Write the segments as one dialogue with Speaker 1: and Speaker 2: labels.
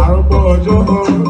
Speaker 1: arúgbó ọjọ́ ọ̀rọ̀.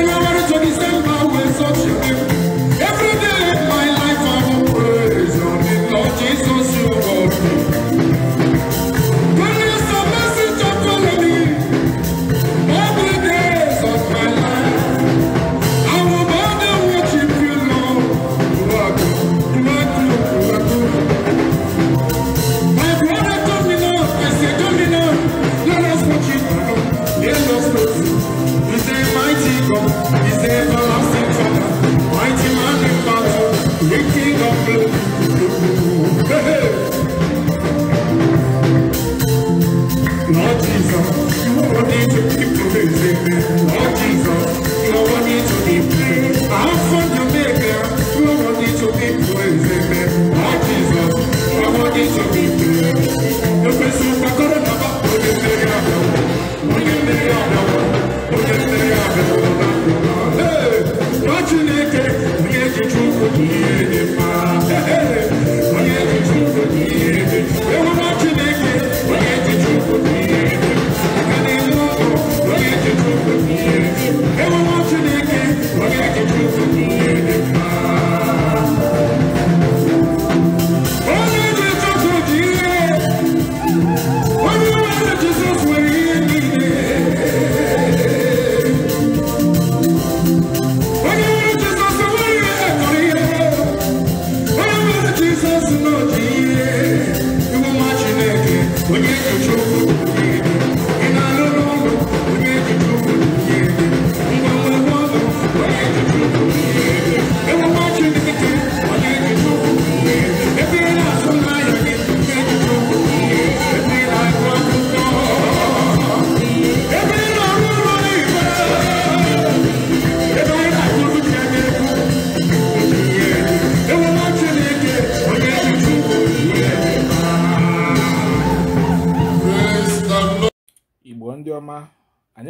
Speaker 1: I'm General Johnny Stemba will such control.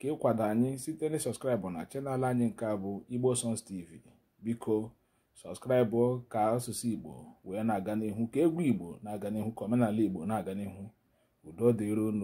Speaker 1: ka ịkwado anyị site na na chanel anyị nke a bụ igbo sons tv biko sọskraịbụ ka asụsụ igbo wee na-aga n'ihu ka egwu igbo na-aga n'ihu ka omenala igbo na-aga n'ihu udo dịron